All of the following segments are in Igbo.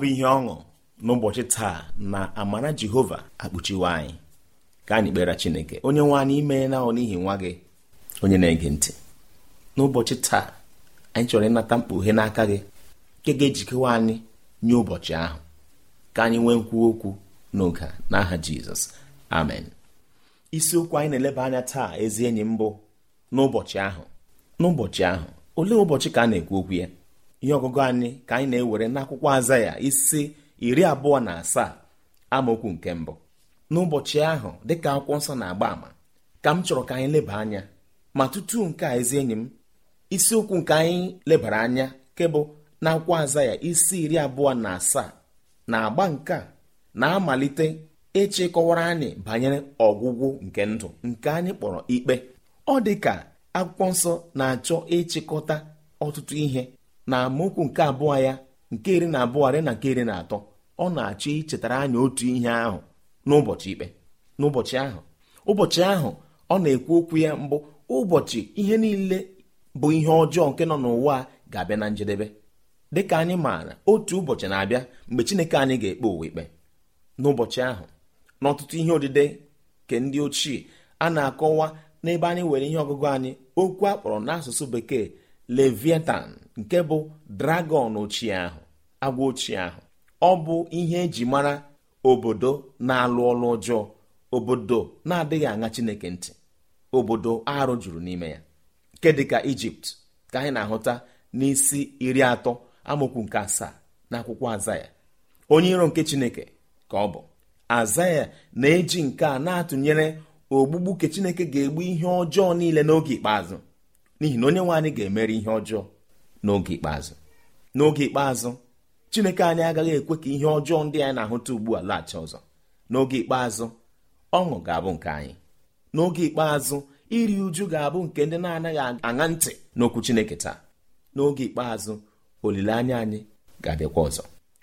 bụ ihe ọṅụ n'ụbọchị taa na amara jehova akpuchiwe anyị ka anyị kpere chineke onye nwe anyị imeela ọ n'ihi nwa gị onye na-ege ntị n'ụbọchị taa anyị chọrọ ịnata mkpughe n'aka gị nke ga-ejikewa anyị nye ụbọchị ahụ ka anyị nwee nkwu okwu n'oge n'aha jizọs amen isiokwu anyị na-eleba anya taa ezi enyi mbụ n'ụbọchị ahụ n'ụbọchị ahụ olee ụbọchị ka a na-ekwu okwu ya ihe ọgụgụ anyị ka anyị na-ewere n'akwụkwọ aza ya isi iri abụọ na asaa amaokwu nke mbụ n'ụbọchị ahụ dịka akwụkwọ nsọ na-agba ama ka m chọrọ ka anyị leba anya ma tutu nke a ezi enyi m isiokwu nke anyị lebara anya nke n'akwụkwọ na akwụkwọ aza ya isi iri abụọ na asaa na agba nke a na-amalite ịchịkọwara anyị banyere ọgwụgwụ nke ndụ nke anyị kpọrọ ikpe ọ dị ka akwụkwọ nsọ na-achọ ịchịkọta ọtụtụ ihe na amaokwu nke abụọ ya nke iri na abụọ rị na nke iri na atọ ọ na-achọ ichetara anyị otu ihe ahụ n'ụbọchị ikpe n'ụbọchị ahụ ụbọchị ahụ ọ na-ekwu okwu ya mbụ ụbọchị ihe niile bụ ihe ọjọọ nke nọ n'ụwa ga-abịa na njedebe dịka anyị maara otu ụbọchị na-abịa mgbe Chineke anyị ga-ekpe ụwa ikpe n'ụbọchị ahụ n'ọtụtụ ihe odide nke ndị ochie a na-akọwa n'ebe anyị nwere ihe ọgụgụ anyị okwu akpọrọ n'asụsụ bekee leviatan. nke bụ dragọn ochie ahụ agwa ochie ahụ ọ bụ ihe eji mara obodo na-alụ ọlụ ọjọọ obodo na-adịghị aṅa chineke ntị obodo arụ juru n'ime ya nke dịka ijipt ka anyị na-ahụta n'isi iri atọ amokwu nke asaa na akwụkwọ azaya onye iro nke chineke ka ọ bụ azaya na-eji nke a na-atụnyere ogbugbu nke chineke ga-egbu ihe ọjọọ niile n'oge ikpeazụ n'ihi na onye nwe anyị ga-emere ihe ọjọọ n'oge ikpeazụ n'oge ikpeazụ chineke anyị agaghị ekwe ka ihe ọjọọ ndị anyị na-ahụta ugbu a laghachi ọzọ n'oge ikpeazụ ọṅụ ga-abụ nke anyị n'oge ikpeazụ iri uju ga-abụ nke ndị na-anaghị aṅa ntị n'okwu chineke taa n'oge ikpeazụ olileanya anyị ga-abịakwa ọzọ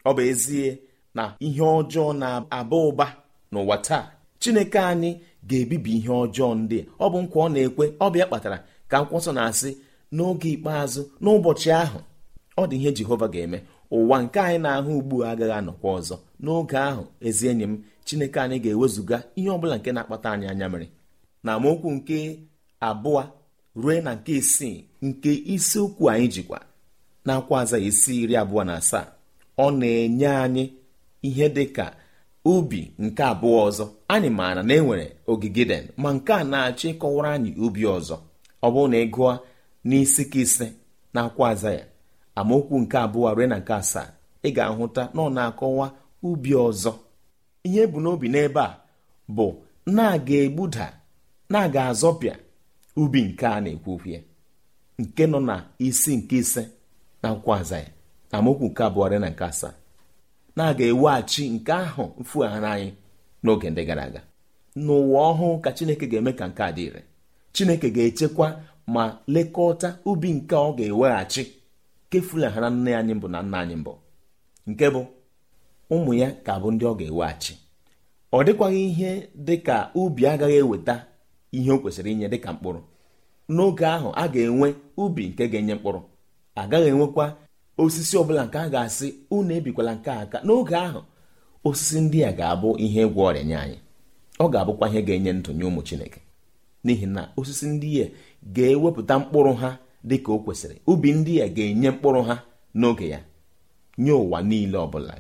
ọ bụ ezie na ihe ọjọọ na-aba ụba n'ụwa taa chineke anyị ga-ebibi ihe ọjọọ ndị ọ bụ nkwa ọ na-ekwe ọ bịa kpatara ka nkwọsọ na-asị n'oge ikpeazụ n'ụbọchị ahụ ọ dị ihe jehova ga-eme ụwa nke anyị na-ahụ ugbu a agaghị anọkwa ọzọ n'oge ahụ ezi enyi m chineke anyị ga-ewezụga ihe ọbụla nke na-akpata anyị anya mere na amaokwu nke abụọ ruo na nke isii nke isiokwu anyị jikwa na-akwa aza isi iri abụọ na asaa ọ na-enye anyị ihe dị ka ubi nke abụọ ọzọ anyị maara na enwere ogige den ma nke a na-achọ ịkọwara anyị ubi ọzọ ọ bụrụ na ị gụọ n'isi ka ise na akwa aza ya amaokwu nke abụọ rue na nke asaa ị ga-ahụta na ọ na-akọwa ubi ọzọ ihe bụ n'obi n'ebe a bụ na-aga egbuda na-aga azọpịa ubi nke a na-ekwu ya nke nọ na isi nke ise na akwa aza ya amaokwu nke abụọ rue na nke asaa na-aga eweghachi nke ahụ mfugharị anyị n'oge ndị gara aga n'ụwa ọhụụ ka chineke ga-eme ka nke a dị ire chineke ga-echekwa ma lekọta ubi nke ọ ga-eweghachi na nne anyị mbụ na nna anyị mbụ nke bụ ụmụ ya ka bụ ndị ọ ga-eweghachi ọ dịkwaghị ihe dịka ubi agaghị eweta ihe o kwesịrị inye dịka mkpụrụ n'oge ahụ a ga-enwe ubi nke ga-enye mkpụrụ agaghị enwekwa osisi ọbụla nke a ga-asị unu ebikwala nke aka n'oge ahụ osisi ndị a ga-abụ ihe ịgwọ ọrịa nye anyị ọ ga-abụkwa ihe ga-enye ndụ nye ụmụ Chineke n'ihi na osisi ndị ya ga-ewepụta mkpụrụ ha dị ka o kwesịrị ubi ndị a ga-enye mkpụrụ ha n'oge ya nye ụwa niile ọbụla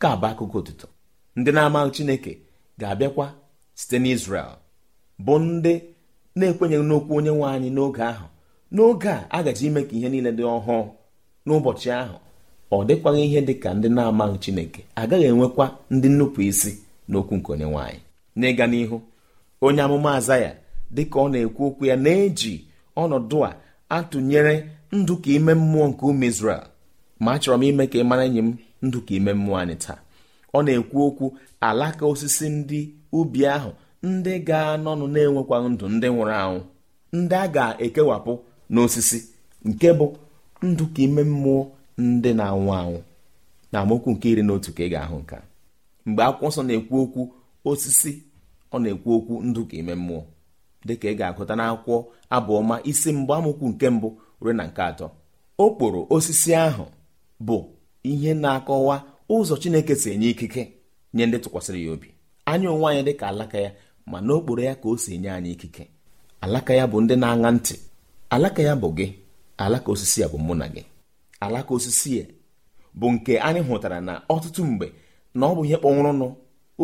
ka bụ akụkọ ụtụtụ ndị na-amaghị Chineke ga-abịakwa site n'Izrel bụ ndị na-ekwenyeghị n'okwu onye nwe anyị n'oge ahụ n'oge a a gaji ime ka ihe niile dị ọhụụ n'ụbọchị ahụ ọ dịkwaghị ihe dị ka ndị na-amaghị Chineke agaghị enwekwa ndị nnupụ isi n'okwu nke onye nwe anyị n'ịga n'ihu onye amụma aza ya dịka ọ na-ekwu okwu ya na-eji ọnọdụ a atụnyere ndụ ka ime mmụọ nke ụmụ Izrel ma achọrọ m ime ka ị mara enyi m ndụ ka ime mmụọ anyị taa ọ na-ekwu okwu alaka osisi ndị ubi ahụ ndị ga-anọnụ na-enwekwa ndụ ndị nwụrụ anwụ ndị a ga-ekewapụ n'osisi nke bụ ndụ ka ime mmụọ ndị na-anwụ anwụ na amaokwu nke iri na otu ka ị ga-ahụ a mgbe akwụkwọ nsọ na-ekwu okwu osisi ọ na-ekwu okwu ndụ ka ime mmụọ dịka ị ga-agụta n'akwụkwọ abụọma isi mgba amụkwu nke mbụ ruo na nke atọ okporo osisi ahụ bụ ihe na-akọwa ụzọ chineke si enye ikike nye ndị tụkwasịrị ya obi anyị onwe anyị dịka alaka ya ma n'okporo ya ka o si enye anyị ikike alaka ya bụ ndị na-aṅa ntị alaka ya bụ gị alaka osisi ya bụ mụ na gị alaka osisi ya bụ nke anyị hụtara na ọtụtụ mgbe na ọ bụ ihe kpọnwụrụnụ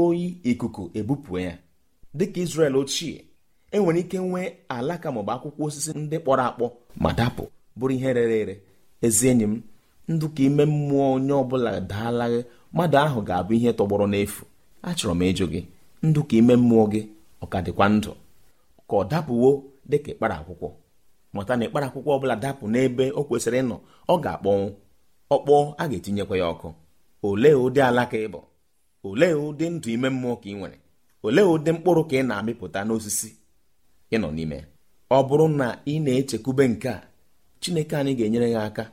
oyi ikuku ebupụ ya dịka Izrel ochie enwere ike nwee alaka maọbụ akwụkwọ osisi ndị kpọrọ akpọ ma dapụ bụrụ ihe rere ere ezi enyi m ndụ ka ime mmụọ onye ọbụla daalaghị mmadụ ahụ ga-abụ ihe tọgbọrọ n'efu achọrọ m ịjụ gị ndụ ka ime mmụọ gị ọ ka dịkwa ndụ ka ọ dapụwo dịka ịkpara akwụkwọ mụta na ịkpara akwụkwọ ọbụla dapụ n'ebe o kwesịrị ịnọ ọ ga-akpọnwụ ọkpọọ a ga-etinyekwa ya ọkụ olee ụdị alaka ịbụ olee ụdị ndụ ime mmụọ ka ị nwere olee ụdị mkpụrụ ka ị na-amịpụta n'osisi ị n'ime ọ bụrụ na ị na-echekwube nke a Chineke anyị ga-enyere ya aka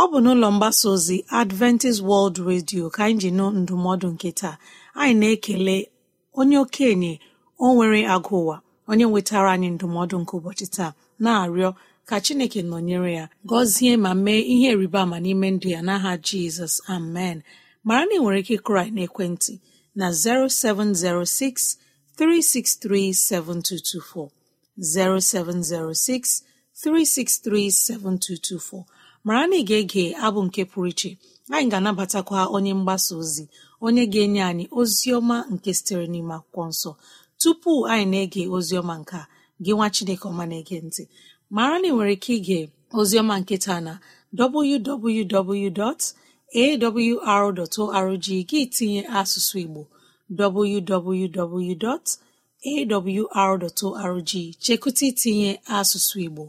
ọ bụ n'ụlọ mgbasa ozi Adventist World Radio ka anyị ji nụ ndụmọdụ nke taa anyị na-ekele onye okenye o nwere agụ ụwa onye nwetara anyị ndụmọdụ nke ụbọchị taa na-arịọ ka Chineke nọnyere ya gọzie ma mee ihe rịba ama n'ime ndụ ya n'aha Jizọs amen mara na ị nwere ike ịkụrụ anyị n'ekwentị na 0706 363 7224 0706 363 7224 mara na ị ga-ege abụ nke pụrụ iche anyị ga-anabatakwa onye mgbasa ozi onye ga-enye anyị ozi ọma nke sitere n'ime akwụkwọ nso tupu anyị na-ege ozi ọma nke a gị nwa Chineke ọma na-ege ntị mara na nwere ike ige ozi ọma nke taa na www. awr.org gị tinye asụsụ igbo www.awr.org chekụta itinye asụsụ igbo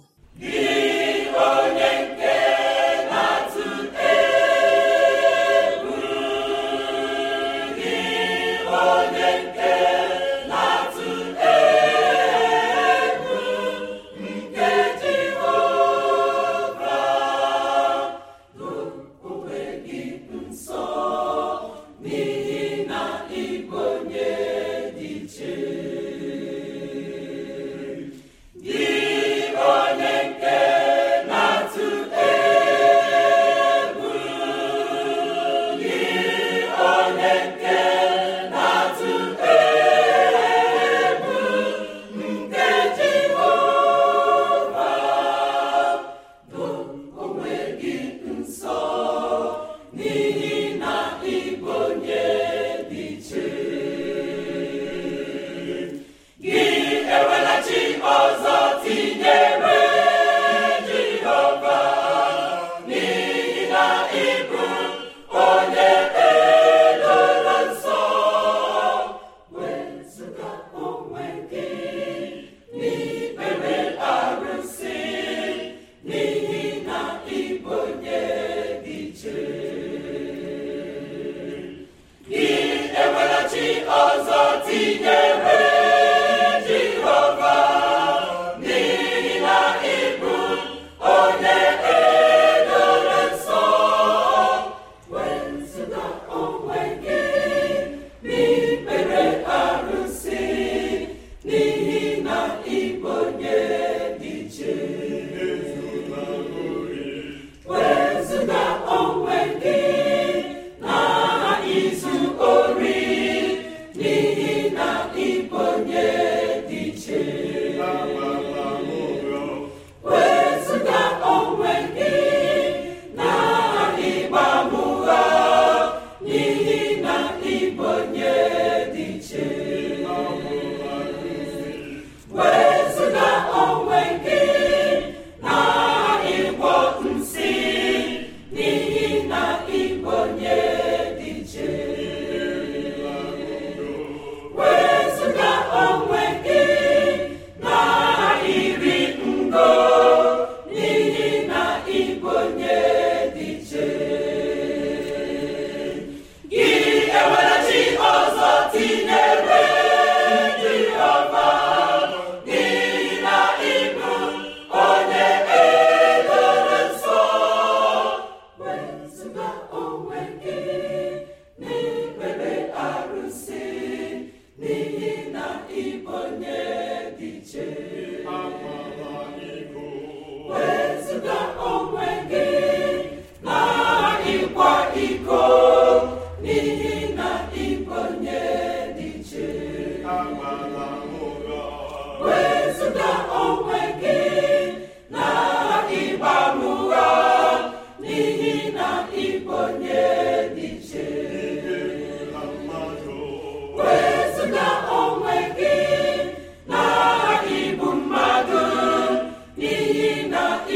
onye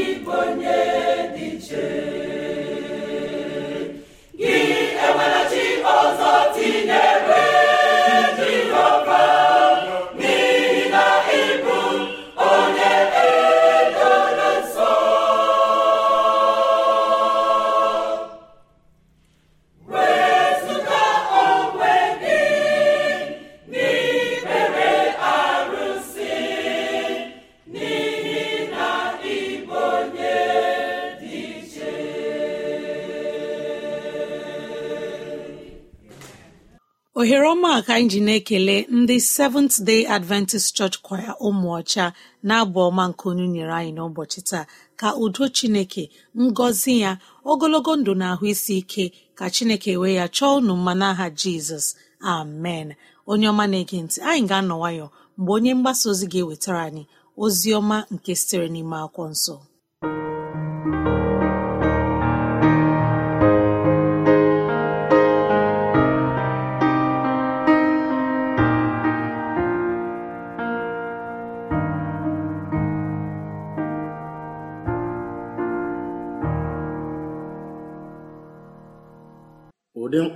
igbo nye anyị ji na-ekele ndị seventh day adventist church choir ụmụọcha na-abụ ọma nke onye nyere anyị n'ụbọchị taa ka udo chineke ngọzi ya ogologo ndụ na ahụ isi ike ka chineke wee ya chọọ unu mmanụ aha jizọs amen onye ọma na-ege ntị anyị ga-anọ nwayọ mgbe onye mgbasa ozi ga-ewetara anyị ozi ọma nke sitere n'ime akwụkwọ nsọ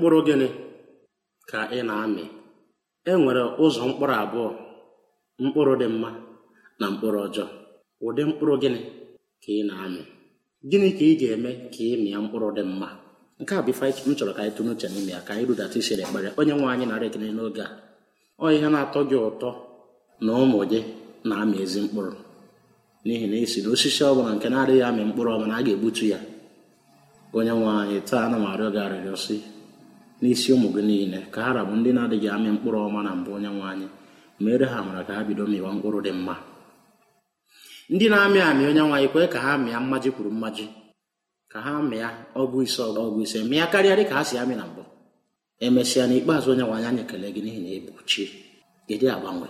mkpụrụ gịnị ka ị na-amị e nwere ụzọ mkpụrụ abụọ mkpụrụ dị mma na mkpụrụ ọjọọ ụdị mkpụrụ gịnị ka ị na-amị gịnị ka ị ga-eme ka ị mịa mkpụrụ dị mma nke a bụ ife m chọrọ ka anyị tụrụ uche n'ime ya ka anyị rudata isiri ekpere onye nwe anyị narị ekene n'oge a ọ ihe na-atọ gị ụtọ na ụmụ gị na-amị ezi mkpụrụ n'ihi na esi na osisi ọ bụla nke na-adịghị amị mkpụrụ ọbụla a ga-egbutu ya onye nwe anyị taa na m arịọ gị arịrịọ n'isi ụmụ gị niile ka ha rabụ ndị na-adịghị amị mkpụrụ ọma na mbụ onye nwe anyị mere ha mara ka ha bido mịwa mkpụrụ dị mma ndị na-amị amị onye nwe anyị kwee ka ha mịa mmaji kwuru mmaji ka ha mịa ọgụ ise ọgụ ise mịa karịa dị ka ha si amị na mbụ emesịa n'ikpeazụ onye nwe anyị anyị ekele gị n'ihi na ị bụ chi gịdị agbanwe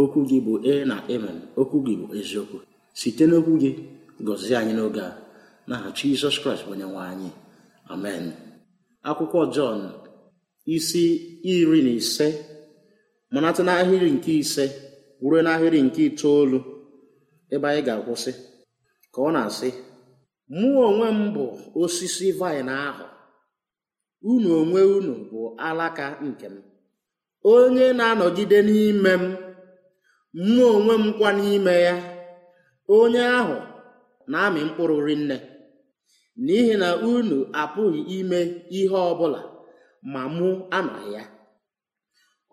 okwu gị bụ e na emen okwu gị bụ eziokwu site n'okwu gị gọzie anyị n'oge a na n'aha Jizọs Kraịst bụ onye nwe anyị amen akwụkwọ Jọn isi iri na ise mụnata n'ahịrị nke ise ruo n'ahịrị nke itoolu ebe anyị ga-akwụsị ka ọ na-asị mụ onwe m bụ osisi vaịn ahụ unu onwe unu bụ alaka nke m onye na-anọgide n'ime m mụ onwe m kwa n'ime ya onye ahụ na-amị mkpụrụ rinne n'ihi na unu apụghị ime ihe ọ bụla ma mụ anọghị ya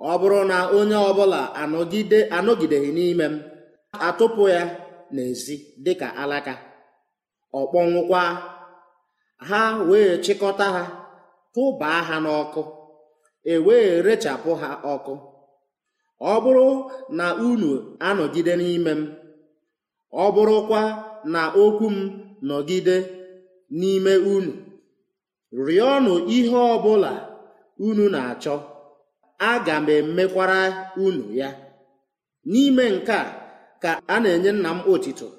ọ bụrụ na onye ọbụla anọgide anọgideghị n'ime m atụpụ ya n'ezi dịka alaka ọkpọnwụkwa ha wee chịkọta ha tụbaa ha n'ọkụ e wee rechapụ ha ọkụ ọ bụrụ na unu anọgide n'ime m ọ bụrụkwa na okwu m nọgide n'ime unu rịọnụ ihe ọbụla unu na-achọ aga m emekwara unu ya n'ime nke a ka a na-enye nna m otito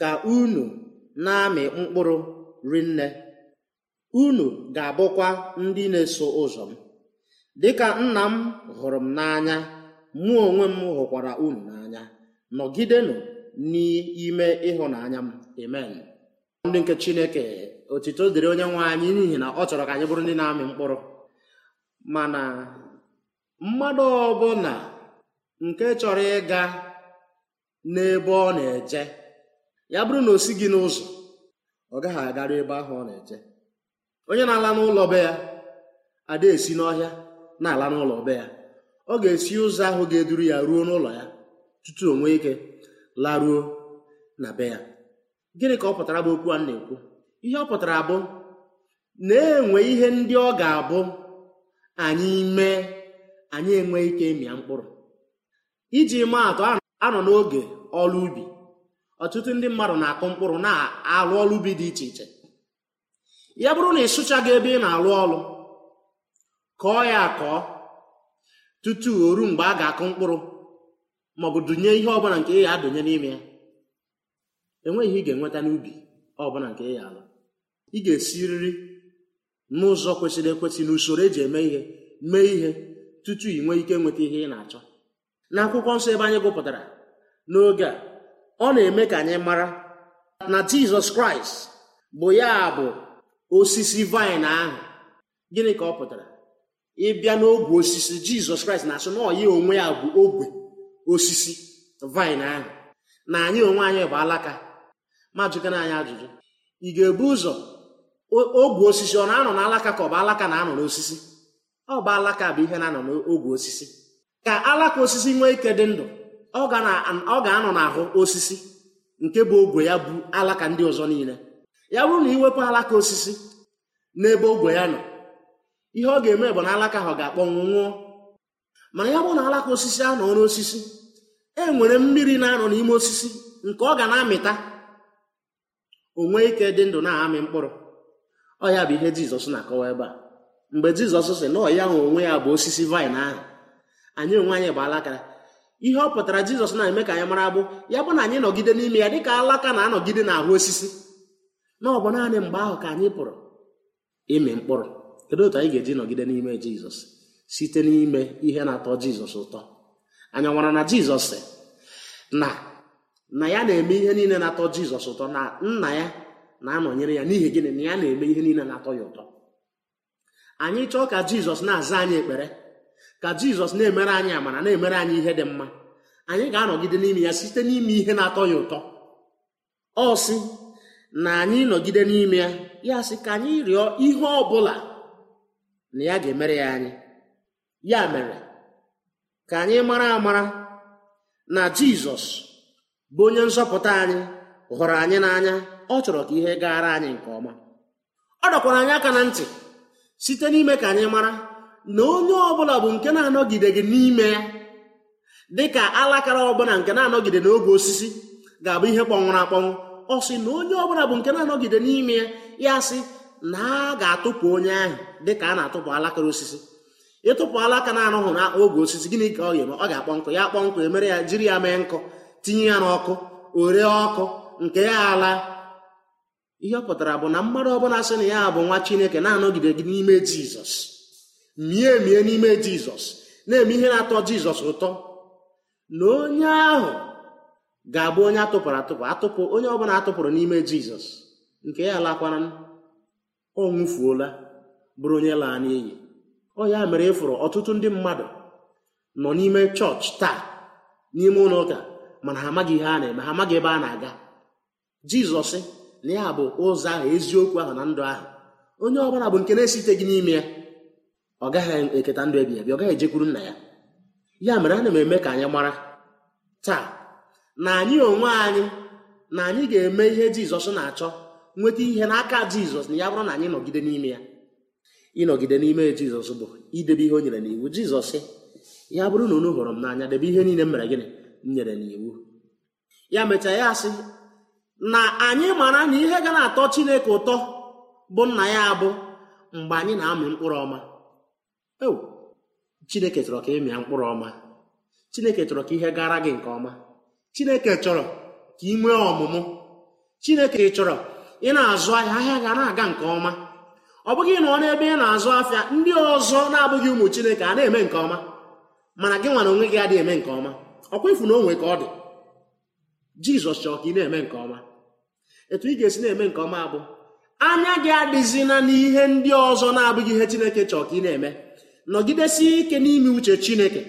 ka unu na-amị mkpụrụ rinne unu ga-abụkwa ndị na-eso ụzọ m dịka nna m hụrụ m n'anya mụ onwe m hụkwara unu n'anya nọgidenụ n'ime ịhụnanya m amen ndị nke chineke otito dịrị onye nwe anyị n'ihi na ọ chọrọ ka anyị bụrụ ndị na-amị mkpụrụ mana mmadụ ọbụla nke chọrọ ịga n'ebe ọ na-eje ya bụrụ na o si gị n'ụzọ ọ gaghị agarụ ebe ahụ ọ na-eje onye na-ala n'ụlọ be ya ada esi n'ọhịa na-ala n'ụlọ be ya ọ ga-esi ụzọ ahụ ga-eduru ya ruo n'ụlọ ya tutu onwe ike laruo na be ya gịnị ka ọ pụtara bụ okwu a na-ekwu ihe ọ pụtara bụ na-enwe ihe ndị ọ ga-abụ anyị mee anyị enweghị ike ịmịa mkpụrụ iji maa atụ anọ n'oge ọrụ ubi ọtụtụ ndị mmadụ na-akụ mkpụrụ na alụ ọrụ ubi dị iche iche ya bụrụ na ị sụchaghị ebe ị na alụ ọrụ kọọ ya akọọ tutu o ruo mgbe a ga-akụ mkpụrụ maọbụ dụnye ihe ọbụla nke ya adụnye n'ime ya enweghị ihe ị ga-enweta n'ubi ọbụla nke ị ya alụ ị ga-esiriri n'ụzọ kwesịrị ekwesị n'usoro eji eme ihe mee ihe tutu ị nwee ike nweta ihe ị na-achọ na akwụkwọ nsọ ebe anyị gụpụtara n'oge a ọ na-eme ka anyị mara na jizọs kraịst bụ ya bụ osisi vaịn ahụ gịnị ka ọ pụtara ịbịa n'ogwe osisi jizọs kraịst na-asụ na ọya onwe ya bụ ogwe osisi vaịn ahụ na anyị onwe anyị bụ alaka ma anyị ajụjụ ị ga-ebu ụzọ ogwe osisi ọ na-anọ n'alaka ka ọ bụ alaka na-anọ n'osisi ọ bụ alaka bụ ihe na-anọ n'ogwe osisi ka alaka osisi nwee ike dị ndụ ọ ga-anọ n'ahụ osisi nke bụ ogwe ya bụ alaka ndị ọzọ niile ya bụrụ na iwepụ alaka osisi n'ebe ogwe ya nọ ihe ọ ga-eme bụ na alaka ahụ ga-akpọnwụ nwụọ mana ya bụrụ na alaka osisi anọ n'osisi e nwere mmiri na-anọ n'ime osisi nke ọ ga na-amịta onwe ike dị ndụ na-amị mkpụrụ ọ ya bụ ihe jizọs na-akọwa ebe a mgbe jizọs si na ọya nwe onwe ya bụ osisi vaịn ahụ anyị onwe anyị bụ alaka ihe ọ pụtara jizọs na-eme ka anyị mara bụ ya bụ na anyị nọgide n'ime ya dịka alaka na-anọgide n'ahụ osisi na ọ bụ naanị mgbe ahụ ka anyị pụrụ ịmị mkpụrụ kedu otu anyị ga-eji nọgide n'ime jizọs site n'ime ihe na-atọ jizọs ụtọ anyị nwara na jizọs na na ya na-eme ihe niile na-atọ jizọs ụtọ na nna ya na-anọnyere ya n'ihi gịnị na ya na-eme ihe niile na-atọ ya ụtọ anyị chọọ ka jizọs na-aza anyị ekpere ka jizọs na-emere anyị amara na-emere anyị ihe dị mma anyị ga-anọgide n'ime ya site n'ime ihe na-atọ ya ụtọ ọ sị na anyị nọgide n'ime ya ya sị ka anyị rịọ ihe ọ bụla na ya ga-emere ya anyị ya mere ka anyị mara amara na jizọs bụ onye nzọpụta anyị hụrụ anyị n'anya ọ chọrọ ka ihe gaara anyị nke ọma ọ dọkwara anyị aka na ntị site n'ime ka anyị mara na onye ọbụla bụ nke na gị n'ime ya dị ka alakara ọbụla nke na-anọgide n'oge osisi ga-abụ ihe kpọnwụrụ akpọnwụ ọ sị na onye ọbụla bụ nke na-anọgide n'ime ya ya sị na a ga-atụpụ onye ahụ dị ka a na-atụpụ alakara osisi ịtụpụ alaka na-arụghụ oge osisi gịnị ka ọ ga-eme ọ ga-akpọ nkụ ya akpọ nkụ emere ya jiri ya mee nkụ tinye ya n'ọkụ ore ọkụ nke ya ala ihe ọ pụtara bụ na mmadụ ọbụla sị na ya bụ nwa chineke na-anọgide gị n'ime jizọs mie emie n'ime jizọs na-eme ihe na-atọ jizọs ụtọ na onye ahụ ga-abụ onye atụpụrụ atụpụ atụpụ onye ọbụla atụpụrụ n'ime jizọs nke ya lakwara ọ nwụfuola bụrụ onye laa n'iyi ọ ya mere ịfụrụ e ọtụtụ ndị mmadụ nọ n'ime chọọchị taa n'ime ụlọ ụka mana ha amaghị ihe a na-eme ha amaghị ebe a na-aga jizọs na ya bụ ụzọ ahụ eziokwu ahụ na ndụ ahụ onye ọbụla bụ nke na gị n'ime ya ọ gaghị eketa ndụ ebighị ebi ọ gaghị ejekwuru nna ya ya mere ana m eme ka anyị mara taa na anyị onwe anyị na anyị ga-eme ihe jizọs na-achọ nweta ihe n'aka jizọs na ya bụrụ na anyị nọgide n'ime ya ịnọgide n'ime jizọs bụ idebe ihe o nyere n'iwu jizọs ya bụrụ na unu hụrụ m n'anya debe ihe niile m mere gịnị m nyere n'iwu ya mechaa ya asị na anyị mara na ihe ga na-atọ chineke ụtọ bụ nna ya abụ mgbe anyị na-amị mkpụrụ ọma chineke chọrọ ka ịmịa mkpụrụ ọma chineke chọrọ ka ihe gara gị nke ọma chineke chọrọ ka ị nwee ọmụmụ chineke chọrọ ị na-azụ ahịa ahịa ga na-aga nke ọma ọ bụghị na ọ n'ebe ị na-azụ afịa ndị ọzọ na-abụghị ụmụ chineke a na-eme nke ọma mana gị nwara onwe gị adịghị eme nke ọma ọkwa ịfụ na onwe ka ọ dị jizọs chọrọ ka ị na-eme nke ọma etu ị ga-esi na-eme nke ọma bụ anya gị adịzina n'ihe ndị ọzọ na-abụghị ihe chineke chọọ ka ị na-eme nọgidesie ike n'ime uche chineke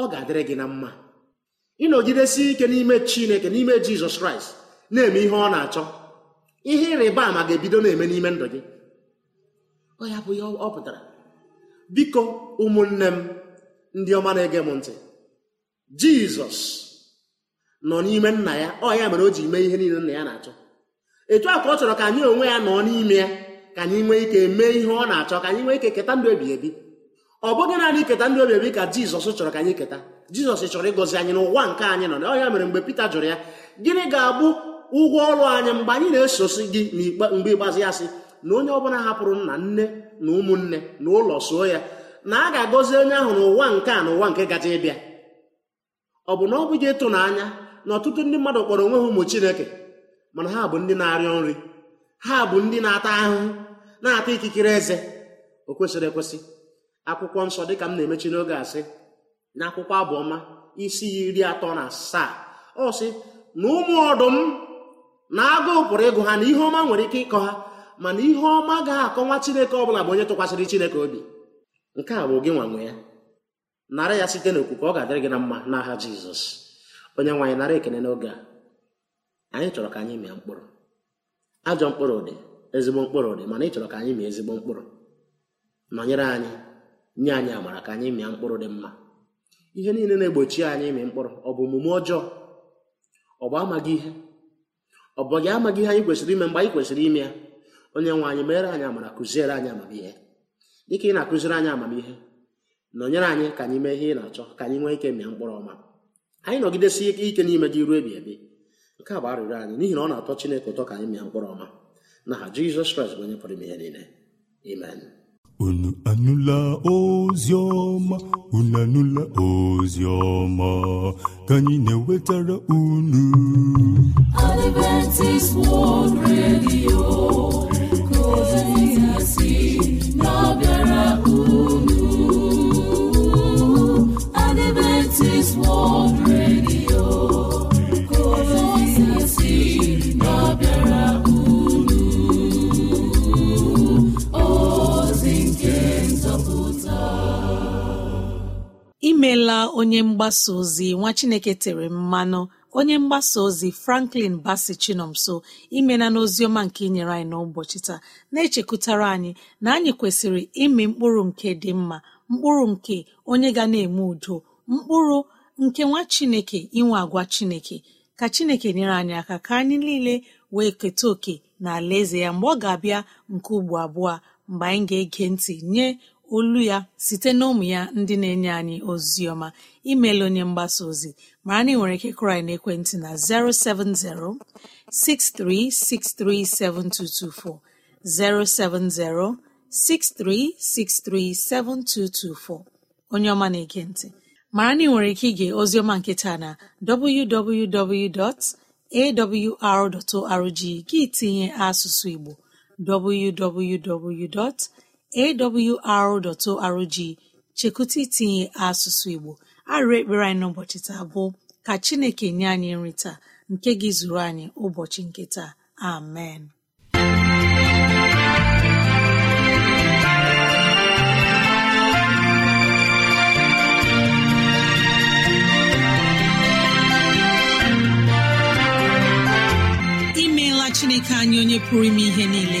ọ ga-adịrị gị na mma ịnọgidesie ike n'ime chineke n'ime jizọs kraịst na-eme ihe ọ na-achọ ihe ịrịba ama ga-ebido na-eme n'ime ndụ gị ọ ya bụ ihe ọ pụtara biko ụmụnne m ndị ọma na-ege m ntị jizọs nọ n'ime nna ya ọ ya mere o ji mee ihe niile nna ya na-achọ etu a ka ọ chọrọ ka anyị onwe ya nọ n'ime ya ka anyị nwee ike mee ihe ọ na-achọ ka anyị nwee ike keta ndụ ebighị ebi ọ bụghị naanị keta ndụ ebighị ebi ka jizọs chọrọ ka anyị keta jizọs chọrọ ịgọzi anyị n'ụwa nke anyị nọ ọ mere mgbe pita jụrụ ya gịnị ga-abụ ụgwọ ọrụ anyị mgbe anyị na-esosi gị mgbe ịgbazi ya sị na onye ọbụla hapụrụ nna nne na ụmụnne na ụlọ soo ya na a ga-agọzi onye ahụ n'ụwa nke a n'ụwa ụwa nke gaje ịbịa ọ bụ na ọ bụghị ịtụnanya na ọtụtụ ndị mmadụ kpọrọ onwe ha ụmụ chineke mana ha bụ ndị na-arịọ nri ha bụ ndị na-ata ahụhụ na-ata ikikere eze o kwesịrị ekwesị akwụkwọ nsọ dịka m na-emechi n'oge asị na akwụkwọ abụọma isi iri atọ na asaa ọ sị na ụmụ ọdụm na agụụ pụrụ ịgụ ha na ihe ọma nwere ike ịkọ ha mana ihe ọma ga-akọnwa chineke ọ bụla bụ onye tụkwasịrị chineke obi nke a bụ gị nwanwe ya nara ya site n'okwukwe ọ ga-adịrị gị na mma n'aha jizọs onye nwaanyị nara ekene n'oge a anyị chọrọ ka anyị mịa mkpụrụ ajọ mkpụrụ dị ezigbo mkpụrụ dị mana ị chọrọ ka anyị mịa ezigbo mkpụrụ nọnyere anyị nye anyị amara ka anyị mịa mkpụrụ dị mma ihe niile na-egbochi anyị ịmị mkpụrụ ọ bụ omume ọjọọ ọ bụ amaghị ihe ọ bụ gị amaghị ihe anyị kwesịrị ime mgbe anyị kwesịrị ime ya onye nwe anyị mere anyị amara kụziere anyị amamihe dịka ị na-akụziri anyị amamihe nọnyere anyị ka anyị mee ihe ị na-achọ ka anyị nwee ike mịa mkpụrụ ọma anyị nọgidesie ike n'ime gị ruo ebi ebi nke a bụ arịrịọ anyị n'ihi na ọ na-atọ Chineke ụtọ ka anyị mee mkpụrụ ọma na n'aha Jizọs Kraịst bụ onye pụrụ ime ihe niile amen unu anụla ozi ọma unu anụla ozi ọma ka anyị na-ewetara unu Adventist World Radio ka ozi si emeela onye mgbasa ozi nwa chineke tere mmanụ onye mgbasa ozi franklin basi chinomso imena n'oziọma nke inyere anyị n'ụbọchị taa na-echekwutara anyị na anyị kwesịrị ịmị mkpụrụ nke dị mma mkpụrụ nke onye ga na-eme udo mkpụrụ nke nwa chineke inwe agwa chineke ka chineke nyere anyị aka ka anyị niile wee keta oke na alaeze ya mgbe ọ ga-abịa nke ugbo abụọ mgbe anyị ga-ege ntị nye olu ya site na ụmụ ya ndị na-enye anyị ozi ọma imeela onye mgbasa ozi mara na ị nwere ike kụrụ na ekwentị na 070 63637224 070 63637224 onye ọma na-ege ntị mara na ị nwere ike ige oziọma nke taa na www.awr.org gị tinye asụsụ Igbo www. awr.org chekụta itinye asụsụ Igbo arịrị ekpere anyị n'ụbọchị taa bụ ka Chineke nye anyị nri taa nke gị zuru anyị ụbọchị nke taa amen imeela Chineke anyị onye pụrụ ime ihe niile